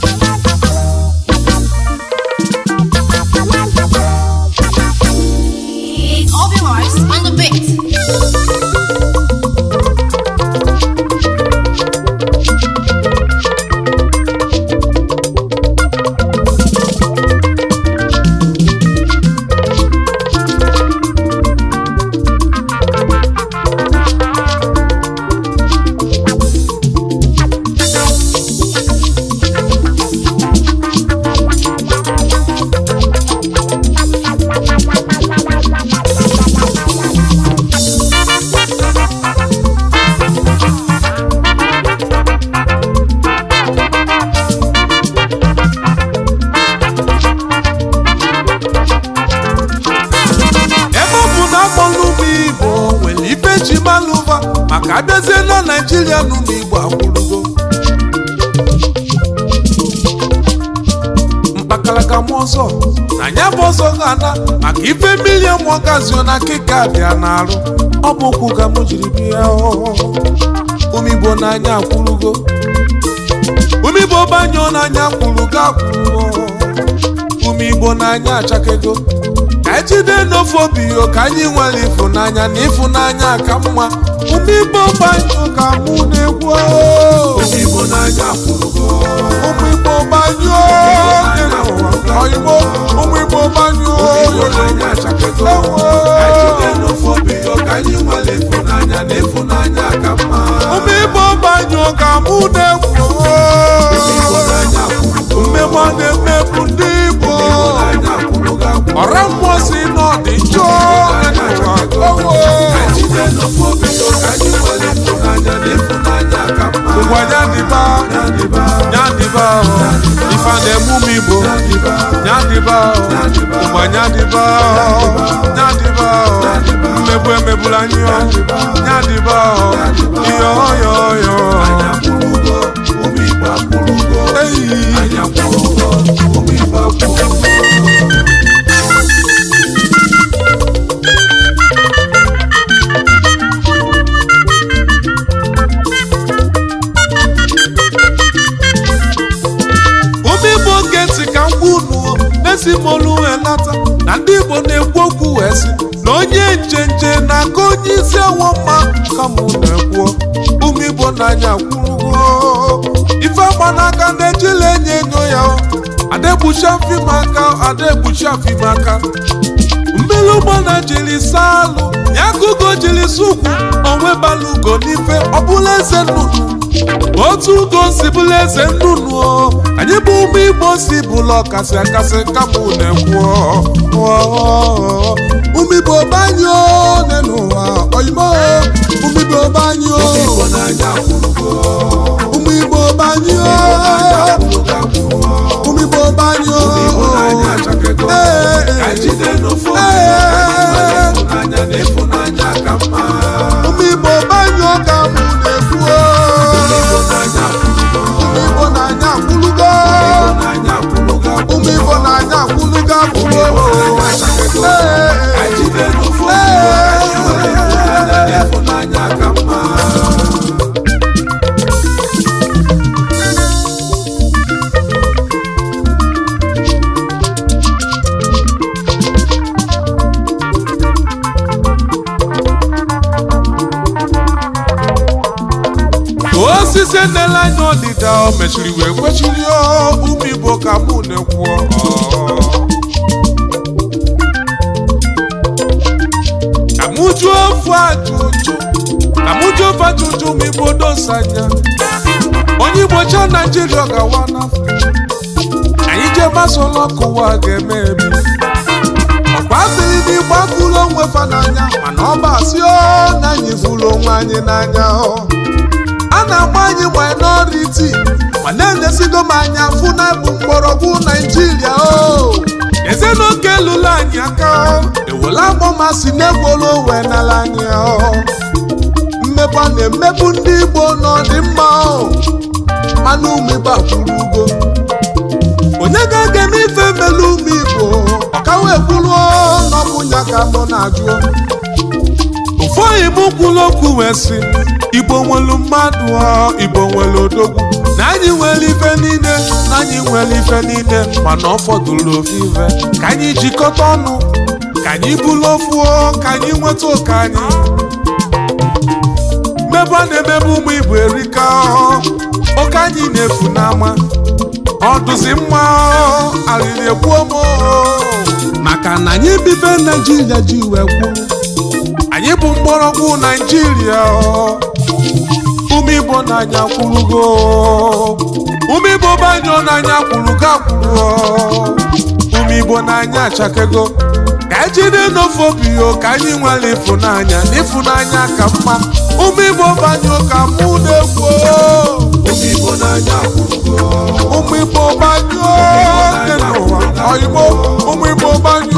Thank naijiria nụ n'igbo akwụrụgo mkpakalaka ma ọzọ na anya bụ ọzọ ga-ada maka ife milion ma ọ gazio na keka bịa na ọ bụ okwu ka m jiri bịa umigbo n'anya akwụrụgo umigbo banyụọ n'anya kwụrụ ga akwụrụgo umigbo n'anya achakego ejide n'ofe obi ka anyị nwere ịfụnanya na ịfụnanya ka mma ụmụ igbo gbanyụ ka mụ na-ekwu ụmụ igbo gbanyụọ ụmụ igbo gbanyụ igbo nyadịba ụgba nyadịba nyadịba mmegbu emegbula anyị nyadịba onye isi ewoma kama na-ekwuo ụmụ Igbo n'anya kwurugo ife gbanaka ndị ejila enye enyo ya adegbuchafimaka adegbuchafimaka mmiri ụgbọ na jiri saa alụ ya kugo jiri si onwe onwebala n'ife ọbụla eze nnụnụ otu ugo si bụla eze nnụnụ anyị bụ ụmụ Igbo si bụla ọkasị akasị kama na-ekwuo umibe ọbanye n'ụwa oyimo umibe ọba enela anyị n'ọdịda o mechiri wee kwechiri ụmụ ka mụ na-ekwuo amụjuo ofu ajụjụ amụjuo ajụjụ ma dosa anya onye Igbo cha Naijiria gawa n'Afrịka anyị jee masolo kụwa ga-eme ebi ọkwa adịghị na ịgbakụlụ onwe fa n'anya mana ọ bụ asị ọ na anyị fụrụ onwe anyị n'anya ọ na-agba anyị minority ma na-enyesigo m anya fụ na bụ mgbọrọgwụ naijiria o eze na oke lụrụ anyị aka ewela agbọmasị na-egworo wee n'ala anyị mmebe na-emebụ ndị igbo n'ọdịmma mana umeba akwụrụ ugo onye ga-aga eme ife melu ume igbo ọkawa ekwuru n'ọbụnya ka mụ na-ajụ Foyibo kwuru okwu wee sị Igbo nwelu mmadụ Igbo nwelu odogwu na anyị nwere ife niile na anyị nwere ife niile mana ọ fọdụrụ ofu ka anyị jikọta ọnụ ka anyị bulu ofu ka anyị nweta oke anyị mmebe na-emebe ụmụ Igbo erika oke anyị na-efu n'ama ọdụzi mma na egbuo m maka na anyị bibe Naijiria ji wee kwuru anyị bụ mgbọrọgwụ naijiria ụmụ n'anya kwurugo ụmụ igbo banyọ n'anya kwurugo akwụrụ ụmụ igbo n'anya achakego ka ejide n'ofe obi ka anyị nwere ịfụnanya n'ịfụnanya ka mma ụmụ igbo banyọ ka mụ na-egwu ụmụ igbo n'anya kwurugo ụmụ igbo banyọ dị n'ụwa oyigbo ụmụ igbo banyọ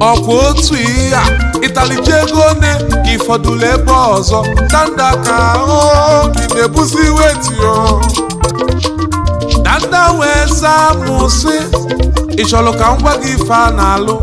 ọkwa otu ihe a ịtalije ego one ka ịfọdụlụ ebe ọzọ danda ka ahụ na-ebuzi wetio danda wee zaa mụ si ị chọrọ ka m gwa gị ife a na-alụ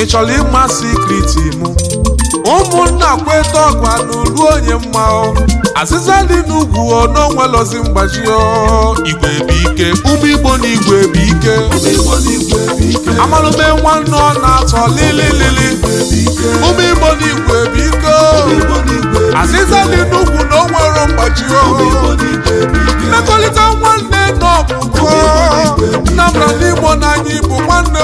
ị chọrọ ịma sikriti mụ ụmụnna kweta ọkwa anụruo onye mma azịza dị n'ugwu ọnọnwelozi mgbaji igwe bụ ike ụmụ igbo na igwe bụ ike amalụme nwanne ọ na-atọ lililili ụmụ igbo na igwe bụ ike azịza dị n'ugwu na o nwere mgbaji mmekọrịta nwanne nọ bụ Nnamdi Igbo na anyị bụ nwanne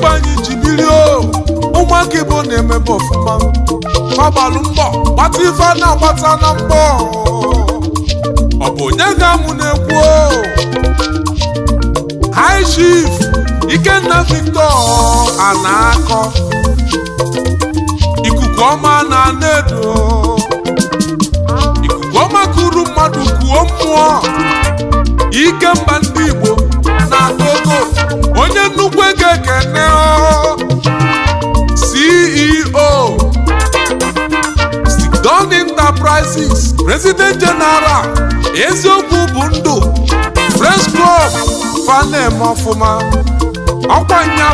ife anyị ji ụmụaka Igbo na-emebe ọfụma agbalụ mbọ gbata ife a na-agbata na mbọ ọ bụ onye ga-amụ na-ekwu high chief Ikenna Victor ana-akọ ikuku ọma na na-edo ikuku ọma kuru mmadụ kuo mmụọ ike mba ndị Igbo ekene CEO e Don Enterprises President General eziokwu bụ ndụ Press fanem ọfụma nya